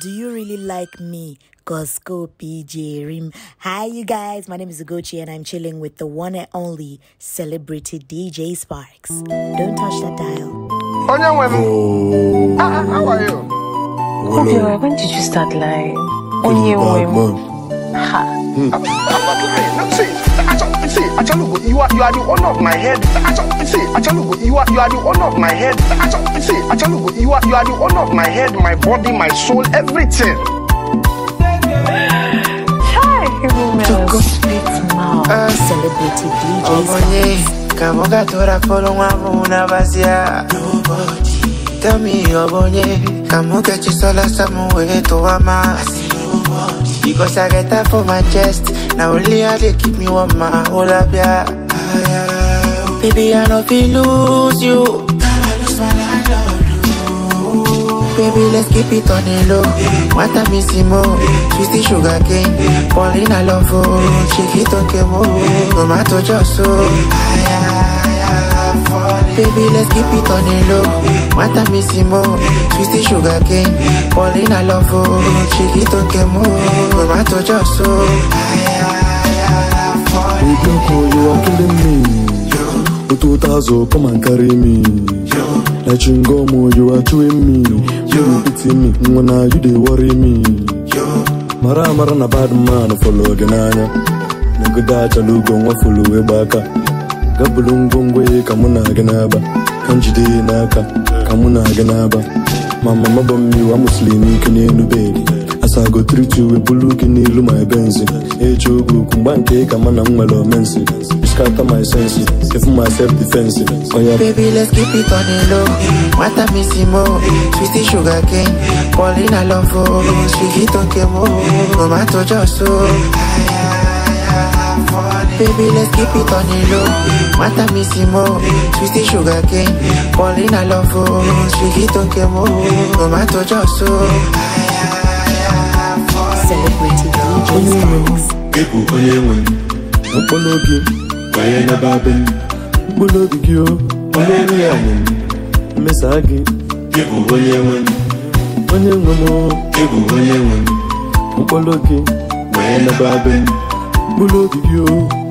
Do you really like me? Cosco PJ Rim. Hi, you guys. My name is Ugochi, and I'm chilling with the one and only celebrity DJ Sparks. Don't touch that dial. Oh, how are you? Okay, when did you start lying? Onye Ha. I'm not lying. No, see, see, Achalugo, you are you are the honor of my head. Achalugo, see, Achalugo, you are you are the honor of my head. Achalugo, see, Achalugo, you are you are the honor of my head, my body, my soul, everything. Obonye, kamoga tora polo mwamu unavazia Tell me, obonye, kamuga Because I get that for my chest. Now only I they keep me warm, my whole up, yeah. Baby, I know we lose you. Baby, let's keep it on the low. one time is more? Twisty sugar cane. Pauline, I love you. Oh. Shake it, okay, more. Oh. No matter just so. I, I, I, I, baby, let's keep it on the low. Matamissimo, twisty sugar cane. in love, oh, kemo. just so. We don't you are killing me. Yo. come and carry me. Yo. you are chewing me. You pity me, when are you they worry me? Yo. Mara mara na bad man, follow the Nigga, that's a lugo, back gaa buru ngwongwo ka mụ na n'aba na m jide ihe n'aka ka mụ na aga n'aba ma mama bụ mmiri a ike n'elu bedi asago triti uwe bulu gị n'ilu ma ebe nzi eji oge okwu mgba nke ka na m nwere omensi scatter my defense oh yeah baby let's keep it on the low sugar cane love oh Baby, let's keep it on the low. Matamissimo, twisty sugar cane. Paulina Lofo, Shigito oh Tomato Josso. Celebrating DJ's Max. People, onye nwe ọpọlọ gị banye n'ebe be mkpụrụ obi gị onye nwe ya nwe mmesa onye nwe onye nwe onye nwe mkpụrụ obi gị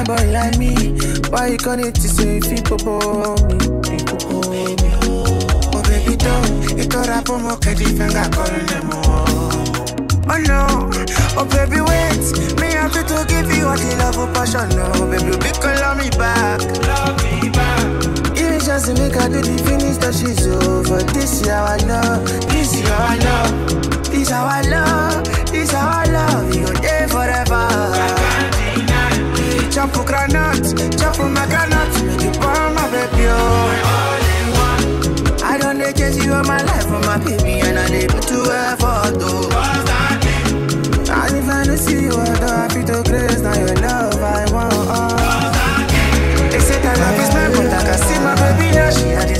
fine boy like me. Why you gonna need to say people bore me? People me. Oh baby don't, you thought I put more candy finger calling them all. Oh no, oh baby wait, me happy to give you all the love and oh, passion. No, baby you can love me back. Love me back. You just make I do the finish that she's over. This is our love, this is our love, this is our love, this is our love. You're there forever. Chafu granat, chafu my granat You pour baby, oh I don't dey chase you all my life for oh, my baby And I live to effort, oh And if I see you, although I feel to grace Now your love I want, oh They say that love is my but I see my baby now She had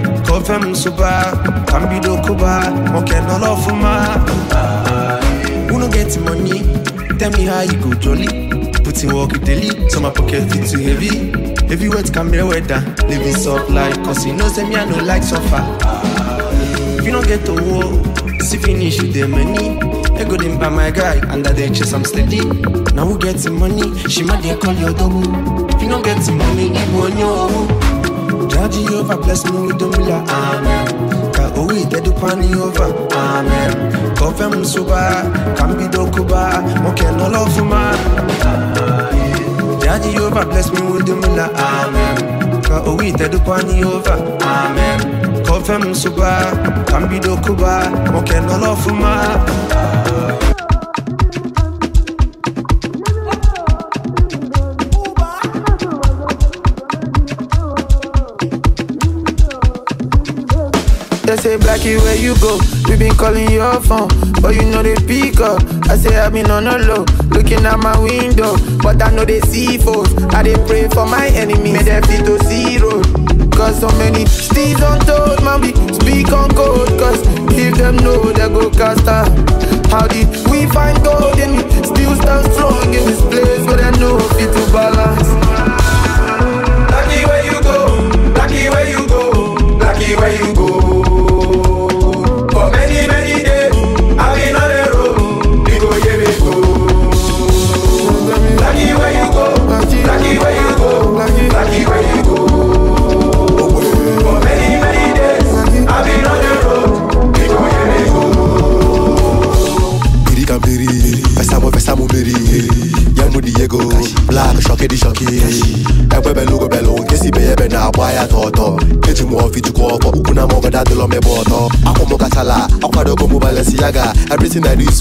fẹ́ mu kambido koba ọkẹ́ nọlọ fún Who no get money? Tell me how you go jolly. Put in work daily, pocket heavy. Heavy wet camera weather, living soft life, cause know say no like suffer. If you get finish money. go my guy, under the chest am steady. na who get the money? She ma dey call your double. If you no get the money, Ka Jehovah bless me with the mula, amen Ka owi dedu pani over, amen Kofe suba, kambi dokuba Moke no love ma Jehovah bless me with the mula, amen Ka owi dedu pani over, amen Kofe suba, kambi dokuba Moke no love ma Jackie, where you go? We been calling your phone, but you know they pick up. I say i been on a low, looking at my window, but I know they see foes. I dey pray for my enemies, may they feel to zero. Cause so many steeds untold, man, we speak on code. Cause if them know, they go cast out.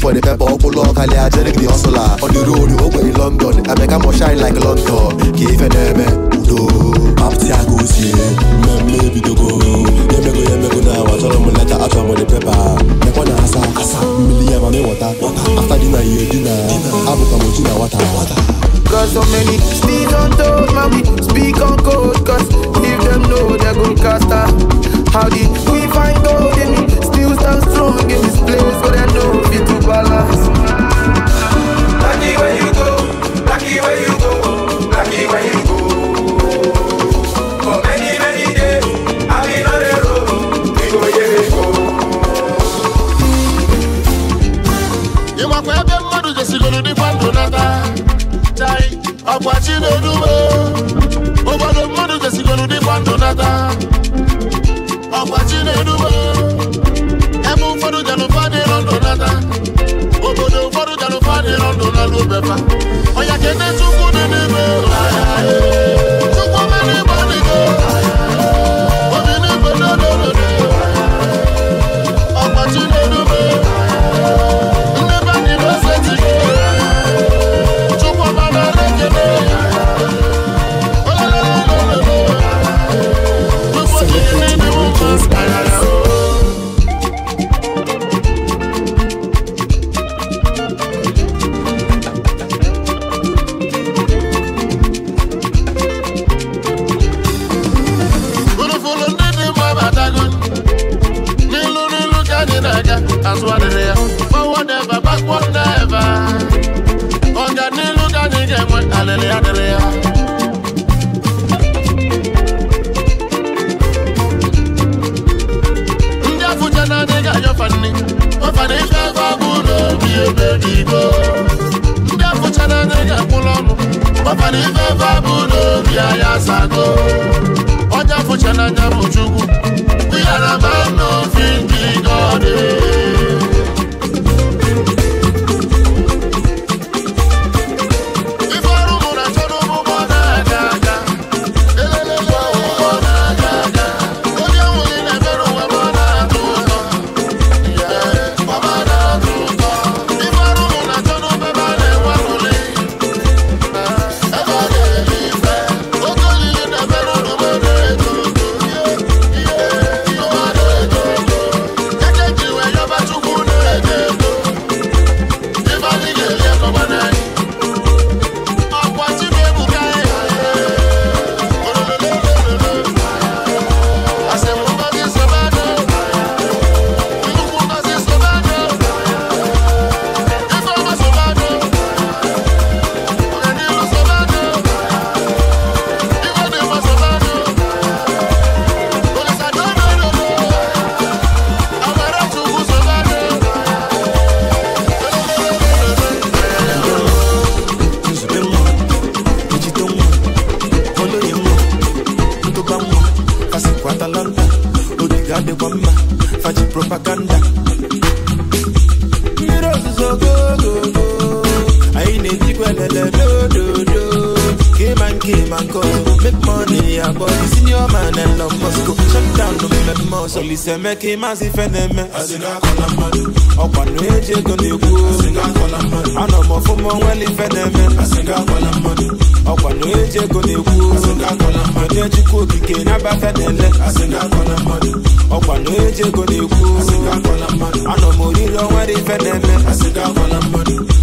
for the pepper ọkwụlụ ọka ajerik the hustler on the road ogbenye London Emeka more shine like London ka ife na-eme udo papti aka osie mmemme ebidogo ya emego ya emego na awa chọrọ m nleta achọrọ the pepper. mekwa na asa asa mmiri ya ma m ịwọta afta dina ihe dina abụkwa m ochi na wata. Cause so many speak on toad, man, we speak on code. Cause if them know they're gon' cast out. How did we find gold in me? Still stand strong in this place, but I know fit to balance. Lucky where you go, lucky where you go, lucky where you go. Ịwakwa ebe mmadụ jesigoro dịkwa ndụ nata akwachi na uwe mmadụ jesigoro dịkwa ndụ nata ọkwachi n'elu ebe ụfọdụ janụfa dịrọ ndụ nata obodo ụfọdụ janụfa dịrọ ndụ nala obefa ọnya kene chukwu dị n'ime Olise ki ma si fe na-eme ọkwa na-eji ego na-ekwu anọ m ọfụma onwela ife na-eme ọkwa na-eji ego na-ekwu onye chukwu okike n'abafe na-ele ọkwa na-eji ego na-ekwu anọ m oriri onwela ife na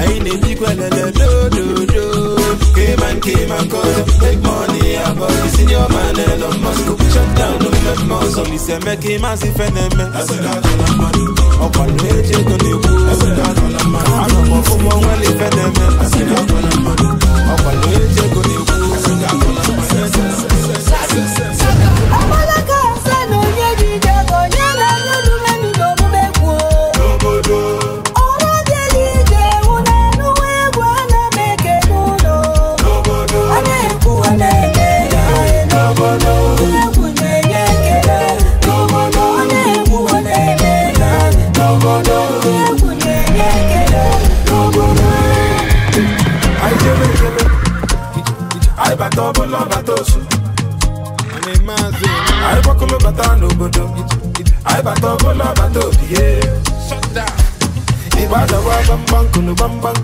anyị na-ebikwa lele dododo Cayman, Cayman, cause ọzọ eme ka ife na-eme ọkwado eji ego na-ekwu anọ m na-eme ọkwado eji ego na-ekwu kunu bambang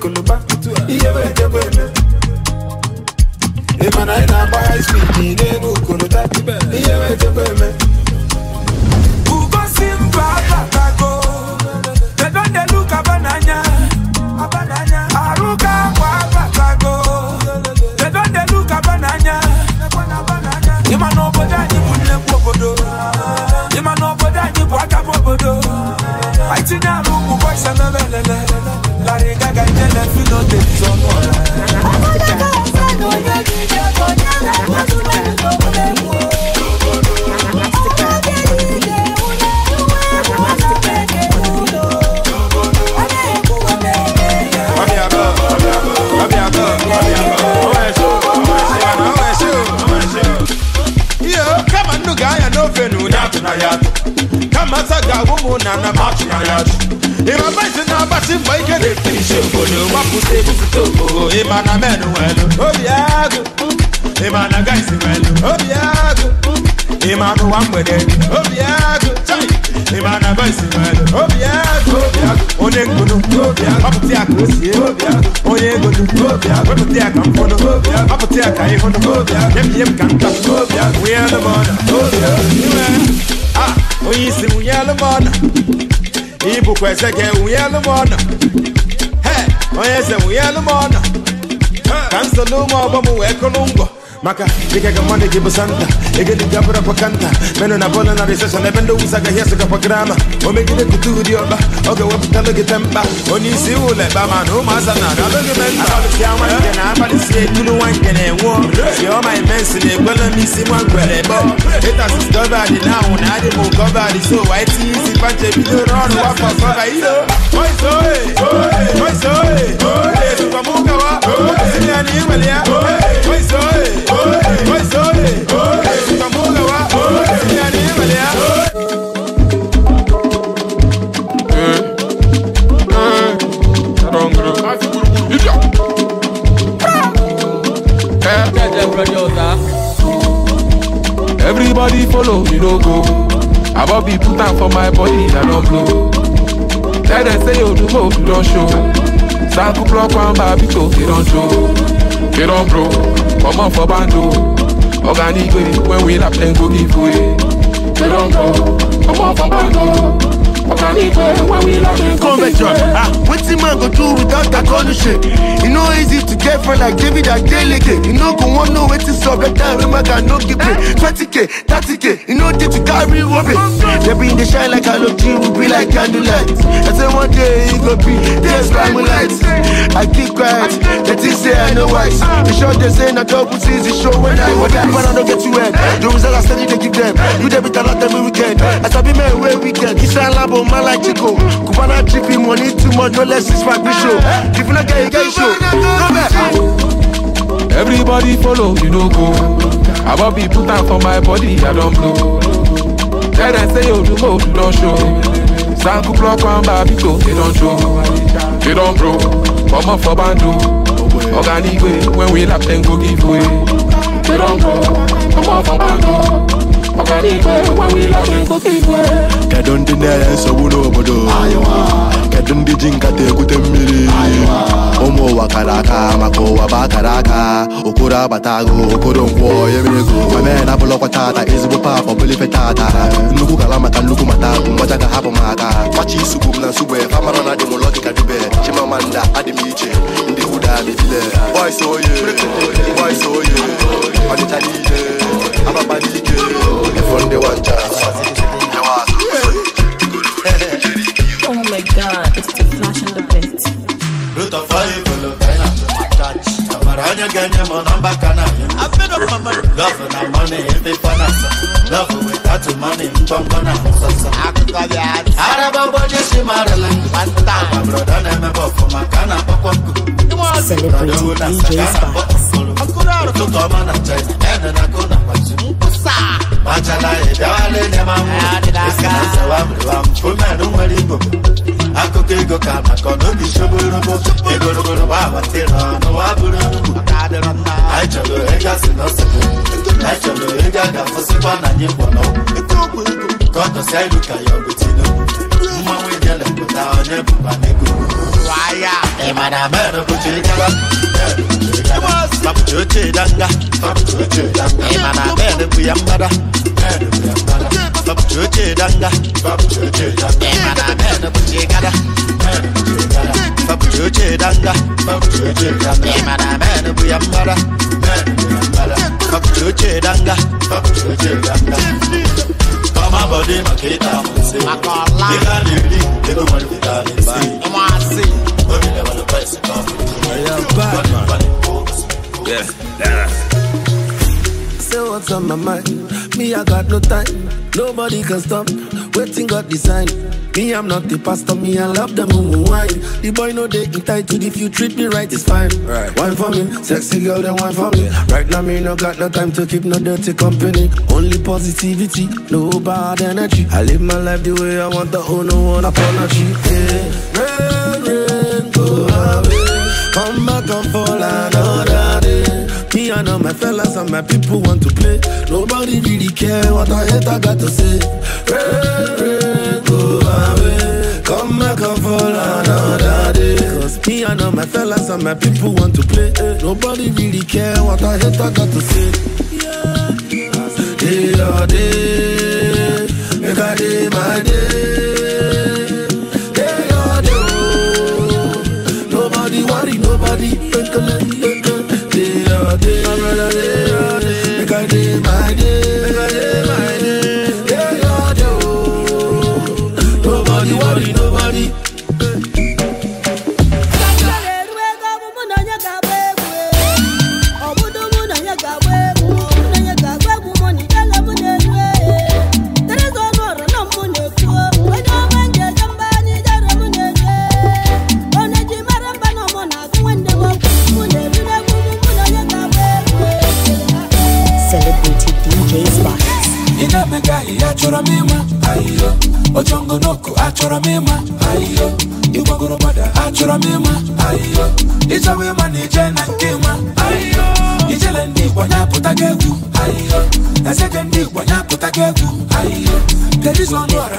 ka eze gị enwunyelu m ọnụ onye eze elu m ọnụ ka m so ụmụ ọgbọ m wee kụrụ ngwọ maka dikega mane ki busanta egedi gabra pakanta meno na na recession na bendo usaga yesu ka programa omegide kutudi oba oge tempa onye isi ụlọ ebe ama na ụmụaza na aga logi memba abalịsịa nwanke na abalịsịa ekulu nwanke na-enwuo si imensi na ekwela m isi nwa ngwere bọ na anwụ na adị wa bidoro ọrụ Everybody follow me no go. I bought be put out for my body i don't blow. Let them say you do hope you don't show. Saku block one they don't Get on bro, come on for bando Organic when we lap then go give come on for bando Convention, ah, wetin man go do without that shit? E no easy to get friend like David Adeleke. You no go wan know wetin sup, let that remark I no give 20k, 30k, e no dey to carry worry. They be in the shine like halogen, we be like candlelight. I say one day e go be there's light. I keep quiet, say I know why. Ah. The short they say na double C's, show when I was that man no get eh? you The I they give them. Eh? You weekend. Eh? I weekend, double man like Chico. Cubana chippy money too much, no less is my show. If you not get it, get show. Go back. Everybody follow, you no go. I want put am for my body, I don blow. Then I say, oh, you know, show. Sanku block one baby go, e don show. They don bro, comot up for bando. oga nigbe when we lap dem go give way. They don bro, comot for bando. kedu ndị na-enye nsogbu n'obodo kedu ndị ji nkata egwute mmiri ụmụ ụwa kara aka maka ụwa bụ akara aka okoro agbata agụ okoro nkwọ yere ego ma mee na abụlọkwa tata ezigbo pap ọbụlife tata nnukwu kala maka nnukwu mata bụ mgbaja ka hapụ m aka machi isugbu m na nsugbe famarọ na adịmụlọ dịka dube chimamanda adị iche ga dey delay Oh my god, it's the flash in the pit. onye ga-enye m nọmba kanal love na money ebe fana love without money ngwangwa na nsọsọ araba bụ onye si marịla agbabrodo na-emebe ọfụma ka a na-akpọkwa ụtụtụ ọma na china ede na kona kwaji machala ịbịawala enye m anwụ omenụ nwere igbo akụkọ ego ka maka ọnụbi shoborobo egorogoro gba abatịra bụrụ ọkadịrịmma anyị chọrọ ịga si anyị ga na anyị mkpọnọ ka ọ dọsịa ilu ka ya ọ mmanwụ tinubu na ijele onye bụba na n'ego waya imana mero kuce danga babucoce danga imana mero kuyambada babucoce danga imana mero kuce gada babucoce danga imana mero kuyambada babucoce danga Mama body makita, I I am Batman. Yeah. Say what's on my mind. Me, I got no time. Nobody can stop. Waiting God design. Me, I'm not the pastor, me, I love the moon wine. The boy no they entitled if you treat me right, it's fine. Right. Wine for me, sexy girl, then wine for me. Right now, me no got no time to keep no dirty company. Only positivity, no bad energy. I live my life the way I want, the oh, no one apology. Yeah. again, go away. Come back and fall another day. Me and all my fellas and my people want to play. Nobody really care what I hate, I got to say. Rain, rain, go away. Come back and fall another day. Cause me and all my fellas and my people want to play. Nobody really care what I hate, I got to say. Day or day, make a day my day. baby. egwu ezeke igbo ya apụtago egwu kedu ọra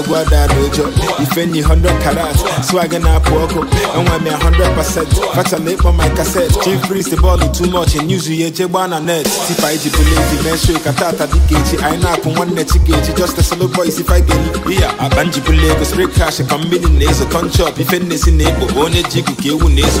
egwu adada ụjọ ife nyi 100 karat swag na-apụ ọkụ enwe m ya 100% fachala ịkpọ my cassette chief priest bọọlụ too much news ya eje gbaa na net tipa iji bụla eji mee show dịka echi anyị na-akwụ nwanne chi ga just a solo boy si fight geli iya akpa njibụla ego spray cash ka mmiri na-ezo ife na onye ji ikuku ewu na-ezo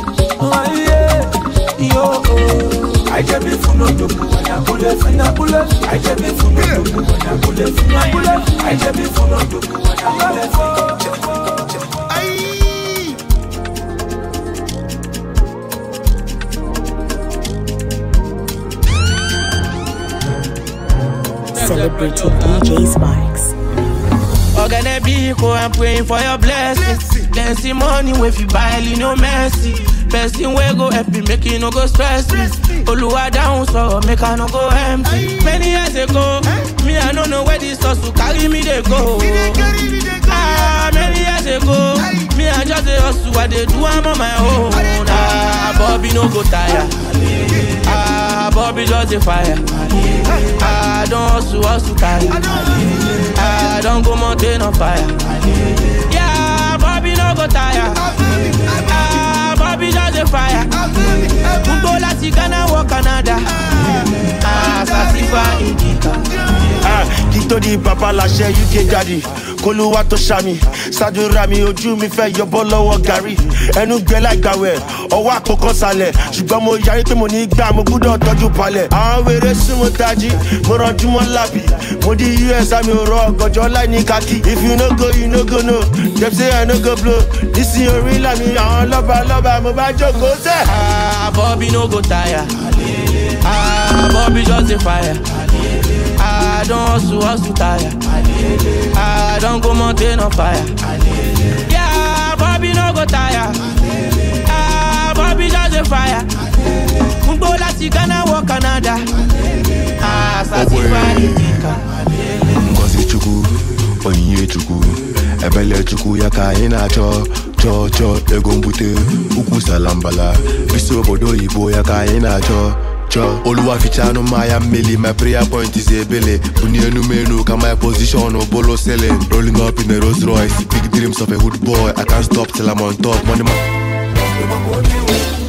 na bullet. I full of when I bullet. Bullet. I full of when I bullet. DJ I'm praying for your blessing. money, if you buy, no mercy. person wey go help me make e no go stress me oluwa down so make i no go empty many years ago me i no know where this hustle carry me dey go ah many years ago me i just dey hustle i dey do am on my own ah bobi no go tire ah bobi just dey fire ah don hustle hustle tire ah don go mountain on fire yeah bobi no go tire ah. be just a fire. N Ghana wọ Canada. Àṣà ti fa ìdíkà. Kí di papa lashe UK daddy. kólúwa tó ṣàmì ṣàdúrà mi ojú mi fẹ́ yọbọ́ lọ́wọ́ gari ẹnu gbẹ láìgbàwẹ̀ ọwọ́ àkókò sálẹ̀ ṣùgbọ́n mo yarí pé mo ní gbà mo gbúdọ̀ tọ́jú palẹ̀. àwọn wèrè sún mo mo mọ́ lábì mo di us àmì òrò ọ̀gànjọ́ láì ní if you no go you no go no dem say i no go blow nísìnyí orí làmì àwọn lọ́ba lọ́ba mo bá jókòó tẹ̀. Ah, no go tire àbọ̀bí ah, just dey fire. I don't hustle, hustle tire. I don't go mountain on fire. Yeah, Bobby no go tire. Ah, Bobby just a fire. Mbo lati Ghana or Canada. Ah, satisfy the thinker. Ngozi chukwu, onyinye chukwu, ebele chukwu ya ka anyị na-achọ chọọ chọọ ego mbute ukwu salambala bisi obodo oyibo ya ka anyị na-achọ chọ oluwafichanu maya mmeli my prayer point is ebele bunye enumenu ka my position bolo selling rolling up in a Rolls Royce big dreams of a hood boy I can't stop till I'm on top money ma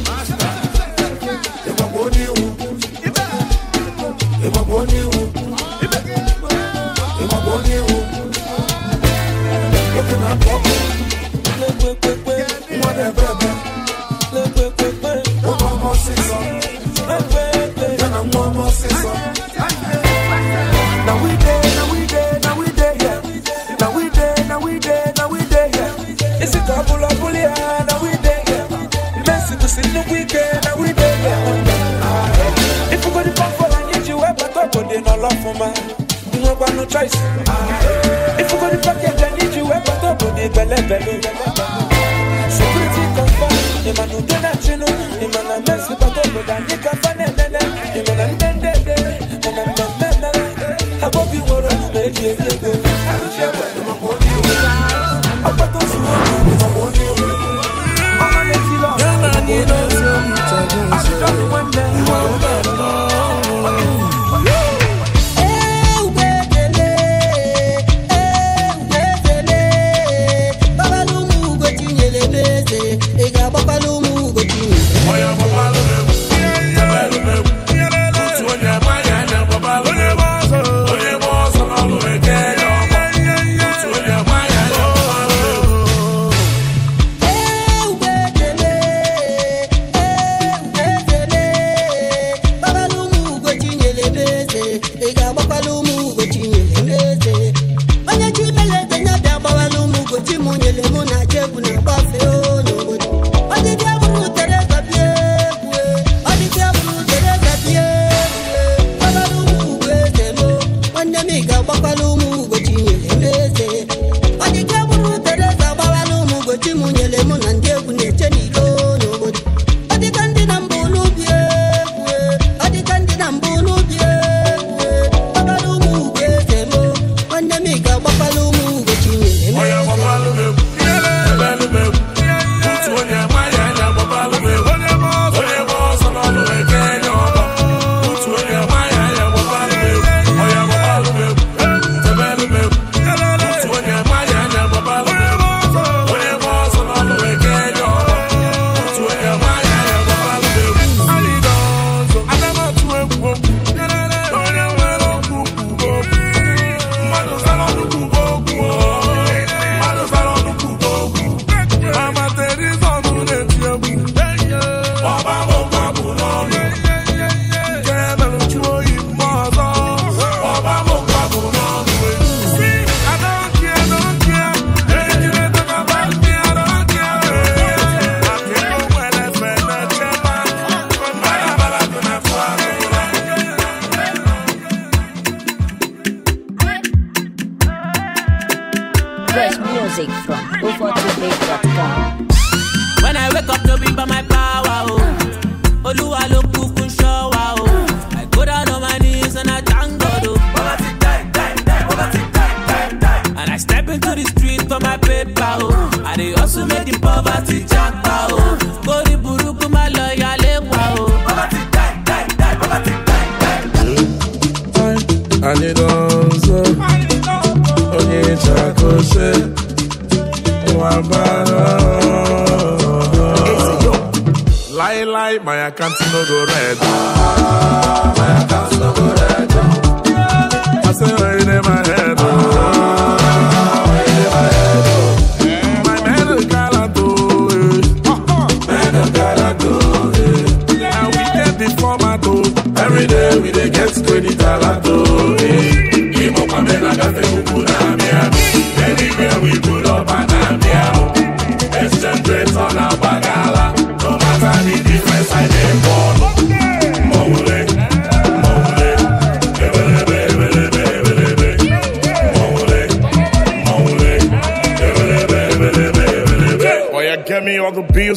my account no go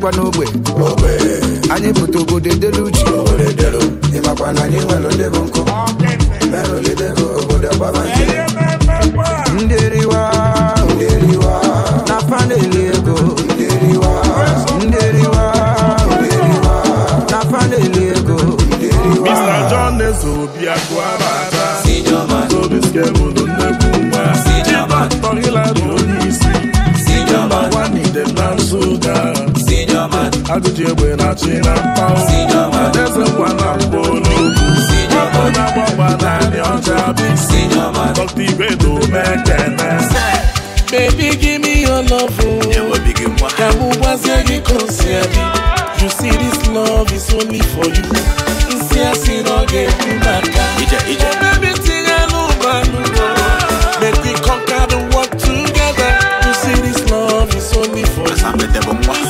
bikwa n'ogbe anyị pụta obodo edelu uche ịmakwa na anyị nwere ndị bụ nkụ ajụjụ egbe na-achị na mpa adaeze ngwa na mba olugbu onye agbagba naanị ọcha bụ isi dọkta ibe na omekene bebi gị m ihe lọvụ ka mụ gwazie gị ka o si adị you see this love is only for you nsị asị na ọ ga-ekwu maka ebe tinye n'ụgbọ anụrụ make we conquer the world together you see this love is only for you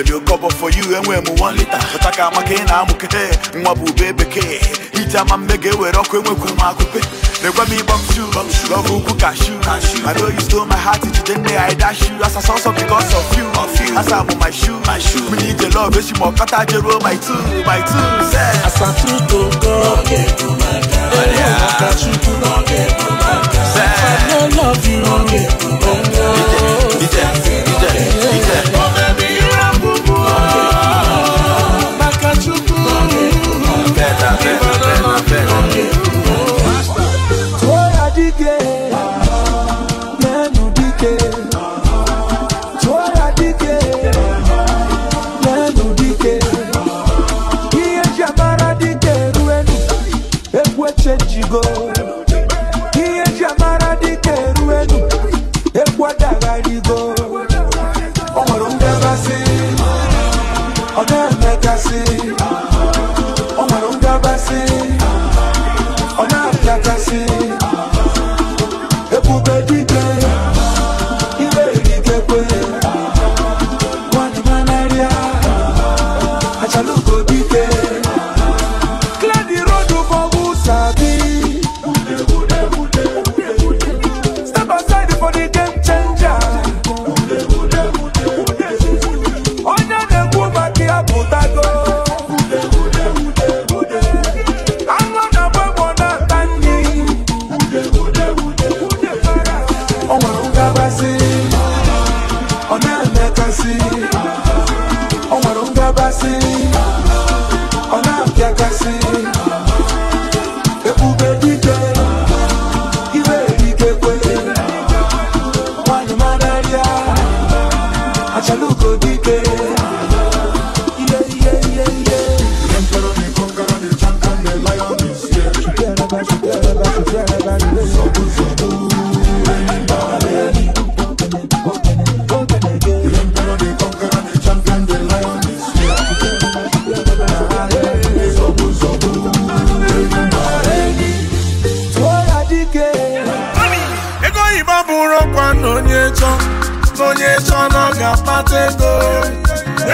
ebere okọbọ for you enwe m one liter pụta ka amaka ị na-amụkete nwa bụ ube bekee iji ama mbe ga-ewere ọkụ enwekwe m akụpe mekwe m ịgbọ mshu ọbụ ukwu kashu I know you stole my heart ijide nne ya ịda shu asa sọsọ because of you asa bụ my shoe my mmiri ije love ma ọkọta jeruo my two my two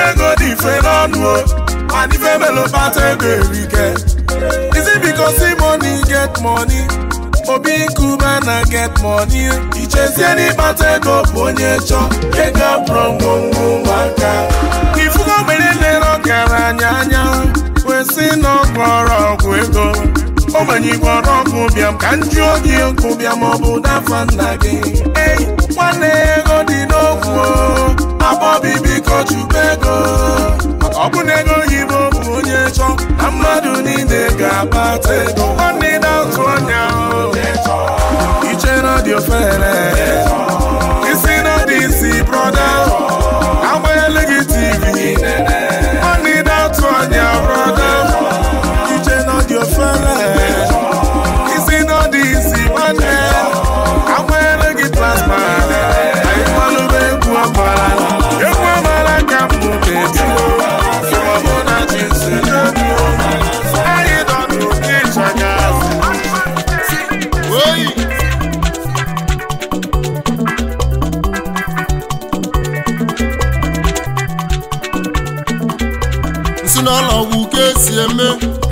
ego dị mfe n'ọnụ o mana ife mere ego erike isi biko si money get money obi nkume na get money ichezie n'ịkpata ego bụ onye chọ ego bụrụ ngwongwo nwaka ifugo mgbere lere ọgaranya anya kwesị na ọgwụ ego ogbenye igwe ọrụ ọkụ bịam ka m oge gị bịa ọ bụ dafa nna gị nwanne okwu akpọbi biko chukwu ego maka na ego oyibo bụ onye chọ na mmadụ niile ga-akpata ego nwanne na-atụ anya iche na dị ofere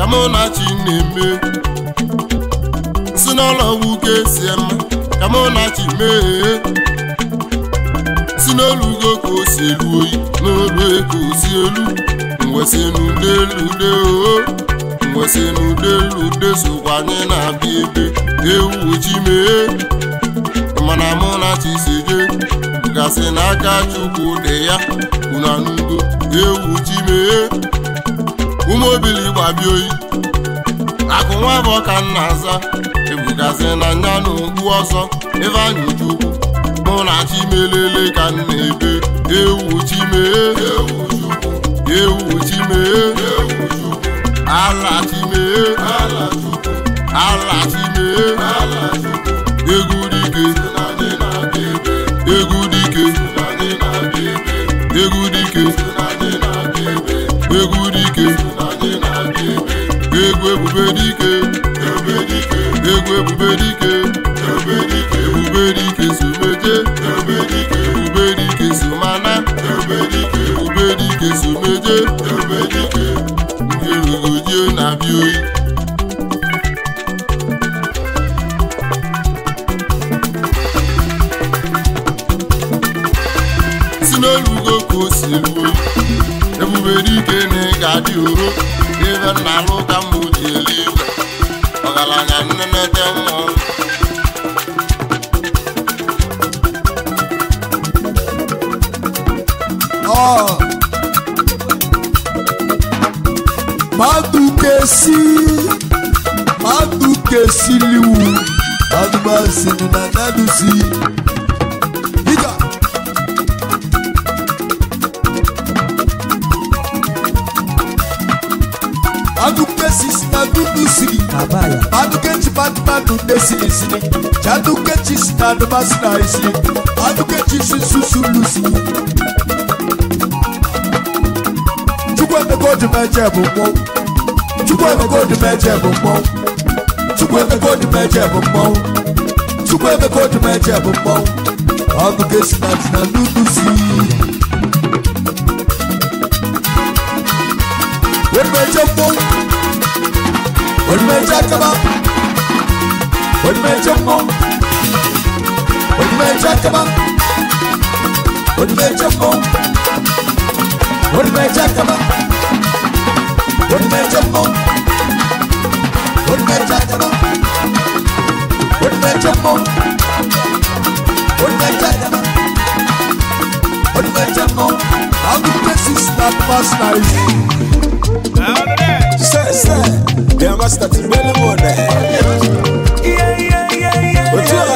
Kamunachi na-eme si nwoke si ema Kamunachi mee si n'olugo ka o si elu oyi n'olu ka o si elu mwesi n'udelude o mwesi n'udelude sokwa anyị na-abịa ebe ewu ojii mee mana Munachi si jee gasị n'aka Chukwu dị ya unanugo ewu ji mee ume obili gbabia oyi akụ nwa bụ ọka nna aza ebugazi na nya na okpu ọsọ ebe anyị chukwu mụ na chimelele ka m na-ebe ewu chimee ewu chimee ala chimee ala chimee egwu dike dike egwu ebube dike egwu ebube dike ebube dike someje ebube dike somana ebube dike someje erugojie na-abịa oyi si n'olugo ka o si ruo na-adị uru ibe nna alụ ka mgbe ji elu igwe ọgaranya nnemete mmụọ madukesi madukesiliwu madubasini na nadusi abala adukechi patipatu desinisini chadukechi sitadubasinaisi adukechi susulusi chukwemeka odimeje bụ mmọnwụ chukwemeka odimeje bụ mmọnwụ chukwemeka odimeje bụ mmọnwụ chukwemeka odimeje bụ na nudusi Where did Olmeca kebap Olmeca mom How places that Sir, sir, to eh? Yeah, yeah, yeah, yeah.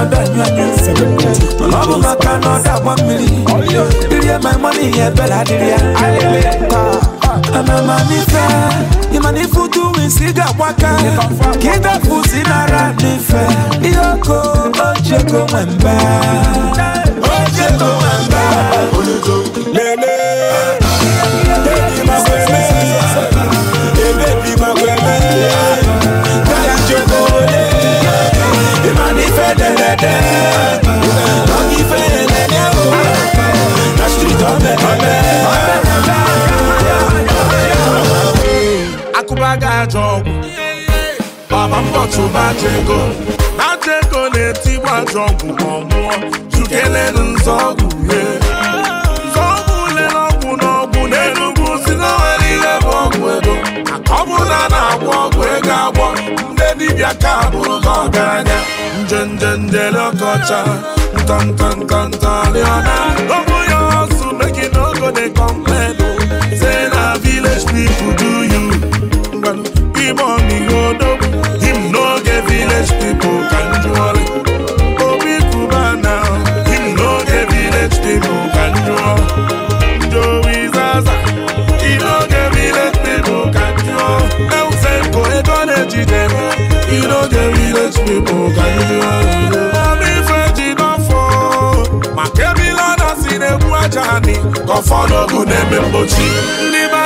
ọdọ ọ bụ maka na ọ mmiri dịrị my money ihe ebere adịrị ya amamanife ịmanife utu wisi ga nara n'ife ihe ọkụ ochego nwembe ajọ ọgwụ baba mbọchụbacha ego ajọ ego na-etigbu ajọ ọgwụ ma ọ mụọ jukelelu nzọ ọgwụ ye nzọọgwụ lere ọgwụ n'ọgwụ n'enugwu si na nwere ihe bụ ọgwụ ego ọ bụrụ na a na-agwọ ọgwụ ego agwọ ndị dibịa ka bụrụ gị ọgaranya njenje njele ọkọcha ntọntọntọntọrịọna obu ya ọsụ meki n'ogo dey complain oh. se na village people do him on the road up. Him no village people can jolly. Obi Kuba now, him no get village people can jolly. Joey Zaza, he no get village people can jolly. El Senko e gonna jide, he no get village people can jolly.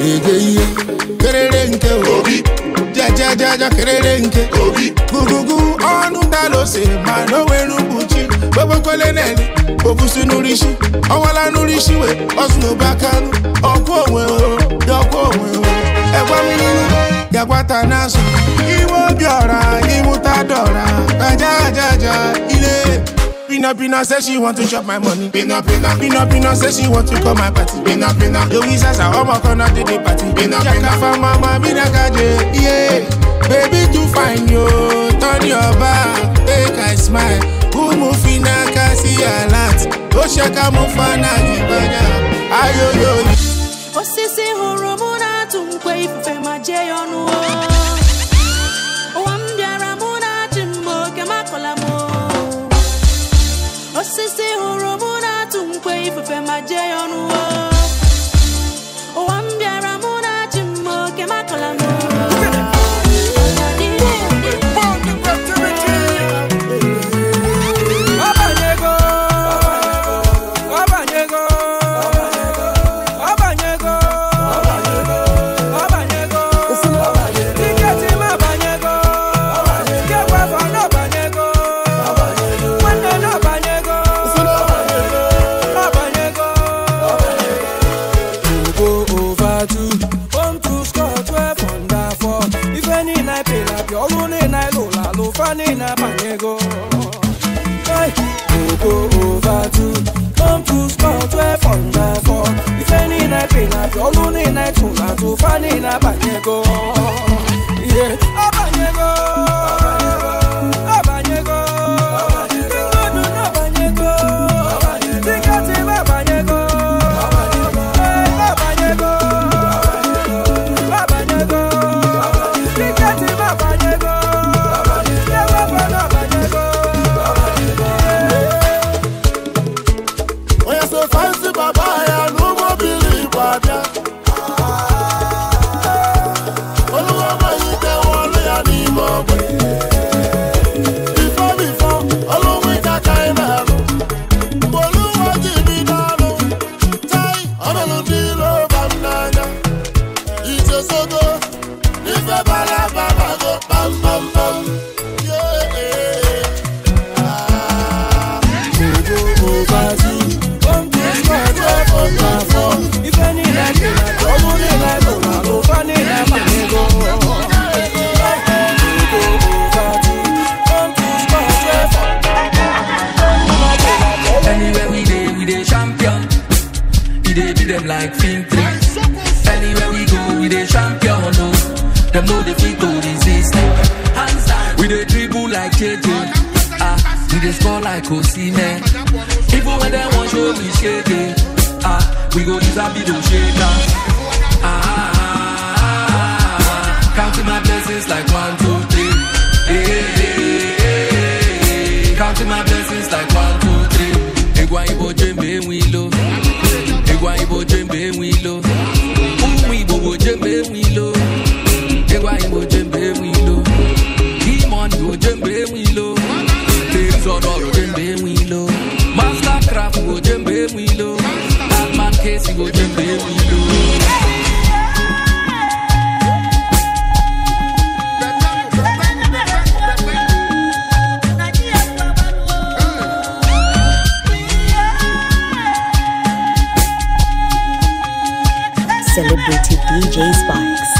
ege ihe kerere nke obi jajajaja kerere nke obi gugugu ọnụ dalose ma na onwere mkpuchi gbogbokweleneli obusi n'urisi ọwala n'urisi we ọzụ n'obe akanụ ọkwa onwe dị dọkwa onwe ẹgwa mmiri gagwata n'azụ iwe obi ọra ịmụta dọra ajajaja ile Pina Pina says she want to chop my money. Pina Pina. Pina Pina says she want to call my party. Pina Pina. Louis as a homo gonna do the party. Pina Pina. for mama, Pina Kaje. Yeah. Baby, too fine, yo. Turn your back. Make I smile. Kumufina kasi alat. Oshaka oh, mufana gibanya. Ayo yo. Osisi hụrụ mụ na-atụ mkwe ifufe ma jee ya jẹ́ ụwa niile abanyego ihe abanyego celebrity DJ sparks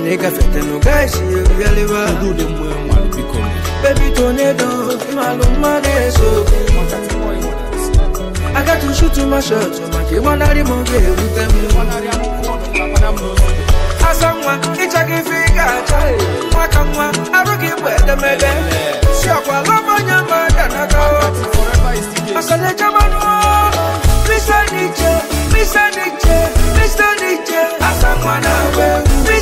and they can fit no guys you really well do the more baby tornado my love my so I got to shoot to my shot to make you wanna remove with them Asamwa ichagi figa chai makamwa arugi wede love ka Mr. Nietzsche, Mr. Nietzsche, Mr. Nietzsche, na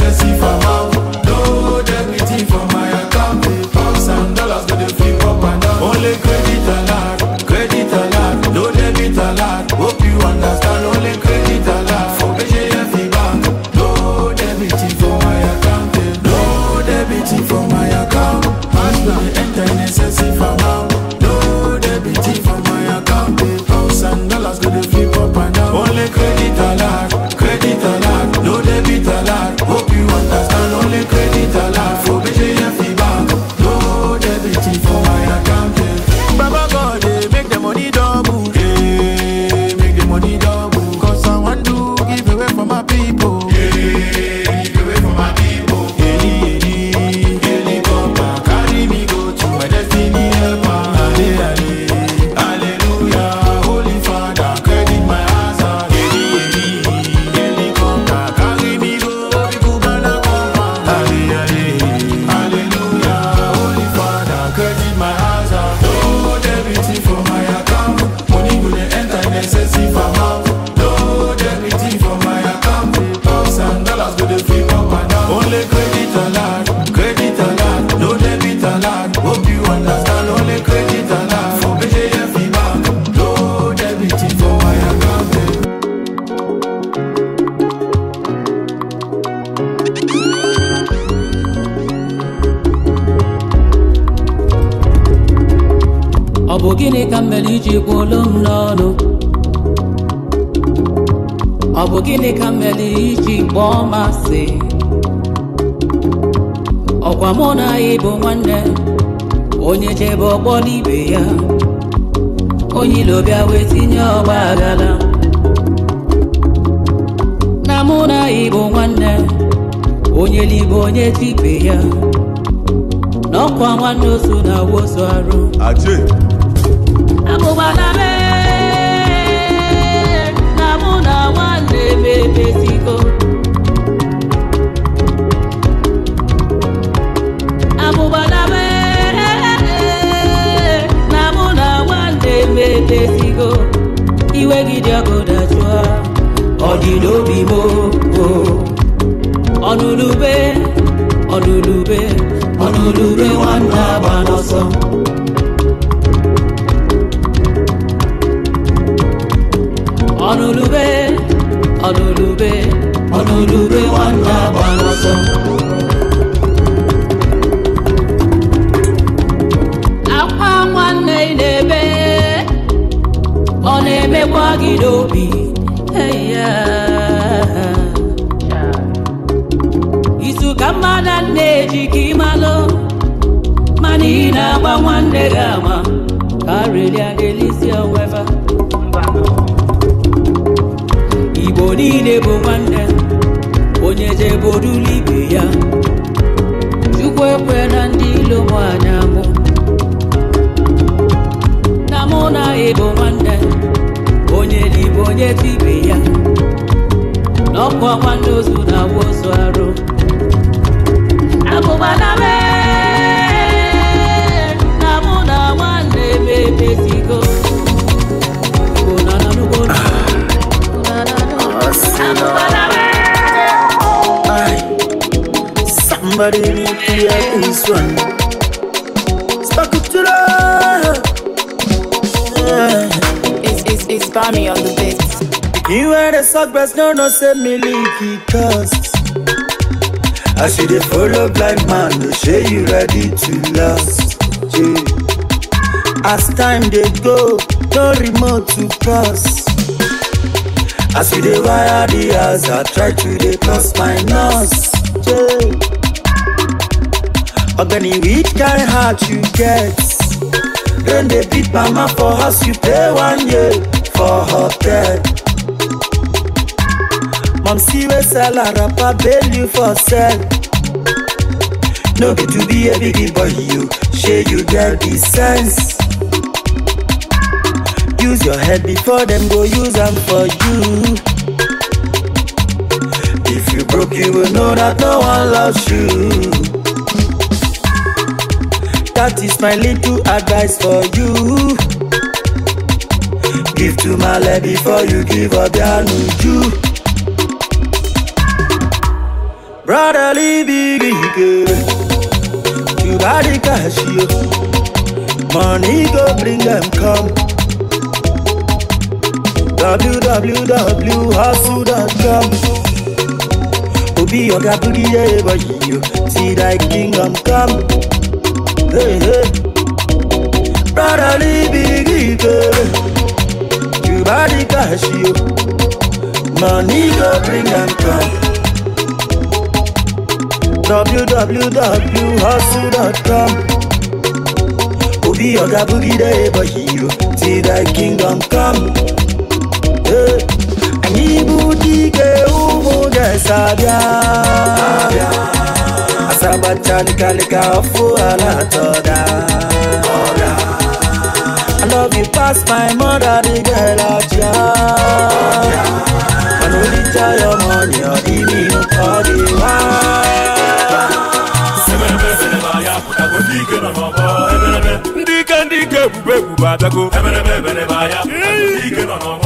excessif à ozi ọkwa mụ na anyị bụ nwanne onye chebe ọkpọ n'ibe ya onye ilo bịa wee tinye ọgba agala. na mụ na anyị bụ nwanne onye libe onye tibe ya na ọkwa nwanne osu na wosu arụ abụbana mee na mụ na nwanne m iwe gị dị ọkụ dajụọ ọdị n'obi m ọnụlube ọnụlube ọnụlube nwanne agba n'ọsọ ọnụlube ọnụlube ọnụlube nwanne agba n'ọsọ emekwa gị n'obi izu ka mma na nne eji ka ịmalụ mana ị na-agba nwanne gị ama karịrịa onwe weva igbo niile bụ nwanne onye jebodula ibe ya chukwu ekwe na ndị ilo m anya mụ na mụ na ịbụ nwanne onye dị onye ibe ya n'ọkụ ọkwa ozu na-awụ ozu arụ na mụ na nwanne Somebody need to hear this one. spam me on the beat. You wear the sock breast, no, no, say me leaky cast. I see the follow blind man, no say you ready to last. Yeah. As time they go, no remote to cross. I see the wire the house, I try to they cross my nose. Yeah. Organic weed guy, hard you get. Then they beat mama for house, you pay one year. for hotel mom see wey sell her rapper bail you for sell no be to be a big boy you shey you get the sense use your head before dem go use am for you if you broke you will know that no one loves you That is my little advice for you. give to male before you give obianuju brotherly big ike you body cash yo money go bring them come www.hustle.com Obi oga booty ever you see thy kingdom come. Hey, hey. Brotherly body cash you money go bring am come www.hustle.com obi oga bugide ebe hero see that kingdom come eh, anyị bụ dike ụmụ ga-esabịa asabacha nkalika afọ ala atọ love you pass my mother, the girl out ya. I know tell your money or the me no party. Dike ndike ebube ebube adago. Ebe n'ebe ebe n'ebe ahịa. ike nọ n'ọgba.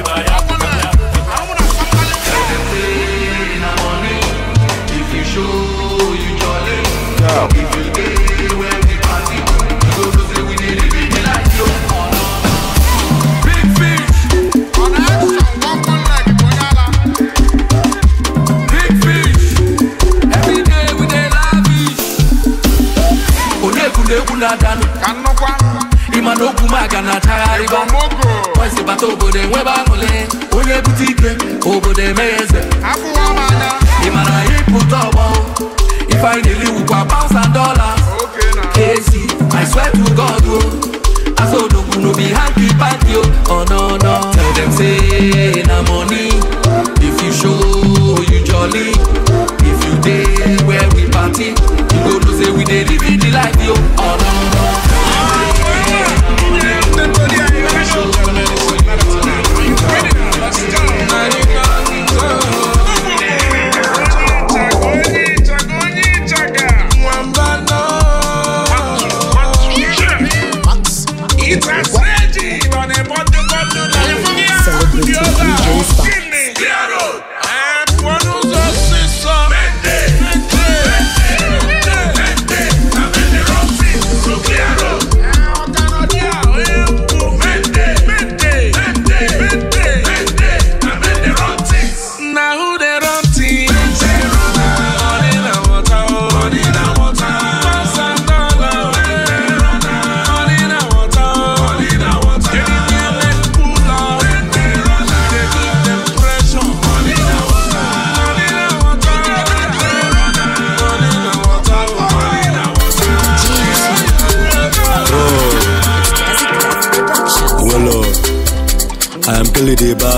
everybody.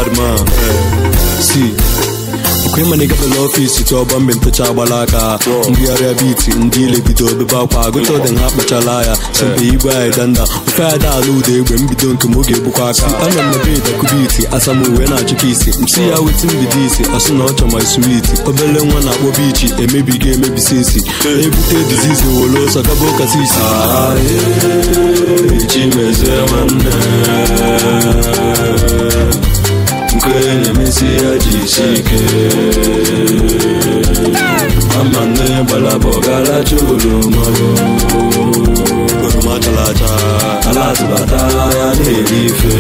badman eh, si okwenye manigado n'ọfisi tụọbọ mgbe mpụcha agbala aka mbigharịa biti ndị ile bido obebe akwa agụta ọdị ha akpachala ya sempe igwe anyị danda ofe anyị daala ụda egbe mbido nke m oge egbukwa aka ana m mebe dakubiti asamuwe na-achịkwa isi msi ya weti mbido isi asụ na ọchọ ma suwiti obele nwa na-akpọ bichi emebigo emebisi isi ebute dizizi were ọsọ gaba ụka sisi nke na-emesi ya ji isi ike ama nne gbalabọ garacha oroma oroma chara acha ala atụbata ya na-eri ife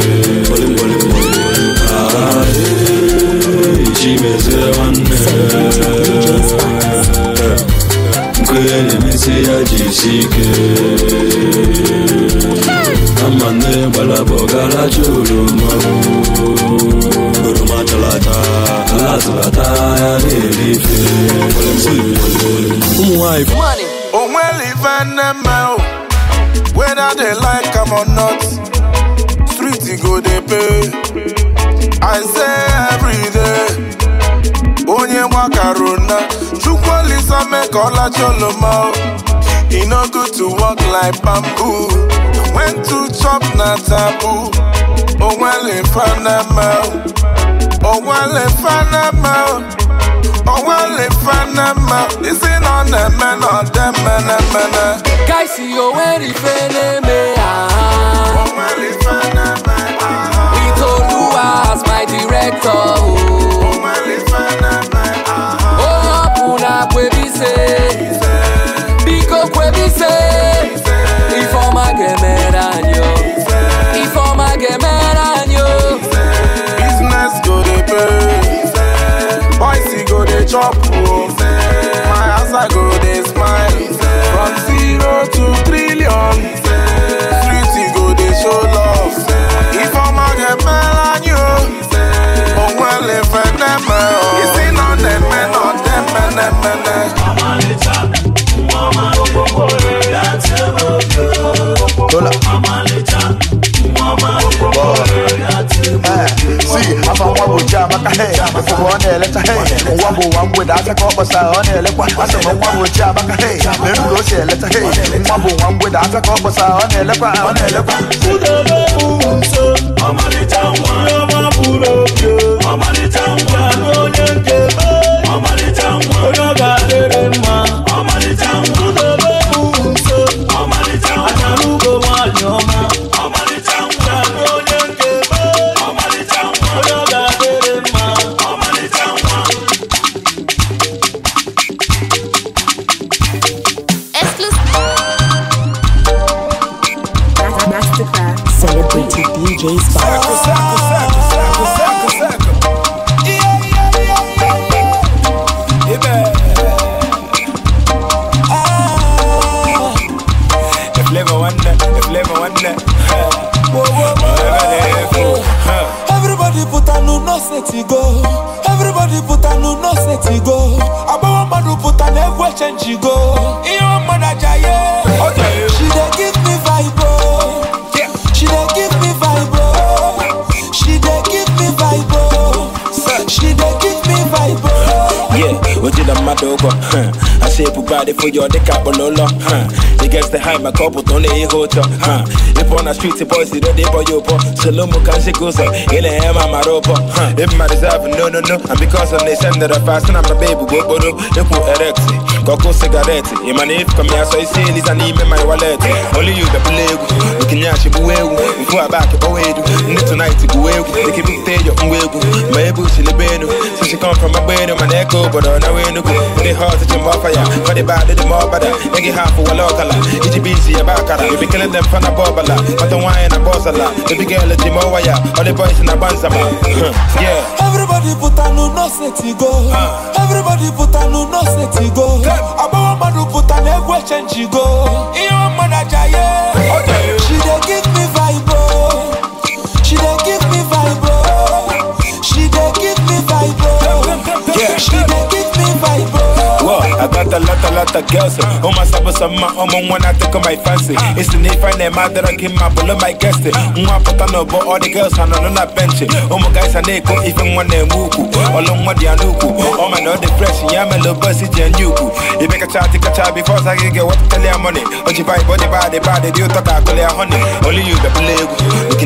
gboligboligboli mezie nwanne na ya jisi ike ama nne gbalaba ọgaracha oroma oroma chara acha ya na-erife ụmụ nwanyị ife nne mmeụ whether like am or not street go dey pay i say onye gbakaruna chukwu olisa mee ka ọlacha oloma e no good to work like bamboo when to chop na taboo onwele fanama onwele fanama onwele fanama isi na ọ na-eme na ọdeme na emena kaisi onwere ife na-eme ha ah. onwele fanama ah, ah, as my director. Oh. chop o oh. my i go dey smile from zero to trillion street go dey show love ifeọma ga-emela anyị o onwele feneme o isi na na-eme na ọdeme na-emene afa nwa bụ chiamaka he ọ na eleta he nwa bụ ụwa mgbede aka ka ọ na-elekwa asị nwa bụ chiamaka he mere ka o si elecha he nwa bụ nwa mgbede aka ka ọ na-elekwa ọ na-elekwa ọmalịcha nwa ọmalịcha nwa onye body for your dick up on all huh It get the high my cup but only a hotel huh If on the street the boys they they boy up Shalom can she goes up in the hammer my rope huh If my reserve no no no and because of they send that fast and I'm a baby go go no Got sigaretị cigarette. na my name, isi here, so you see, Lisa, need me my wallet. Only you, the bulegu. Looking at you, buegu. Go back, buegu. Need tonight, egwu. ma can be there, your buegu. My bush in the bed. So she come from my bed, my neck, but on the way, no go. They hard to jump off fire. bad, more half of a local. It's busy, a baccara. You be killing them from a bobala. But the wine, a bossala. The big girl, the jimoya. All the boys in a everybody put a new no ah. everybody put a no pụta na egwu echenjigo she dey give me vibe oh. she dey give me vibe oh. she dey give me vibe oh. she dey give I got a lot, a lot of girls. Oh, my sabba, some my own when I take on my fancy. It's an if I name out that I my bullet, my guest. Mwa put on over all the girls, and na that bench. Oh, my guys, and they go even when they move. Along with the Anuku. Oh, my no depression, yeah, my little bussy, and you. You make a child, take a child before I get what tell your money. Oh, you buy body, body, body, you talk, I your honey. Only you, the You